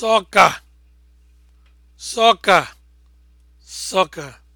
soccer soccer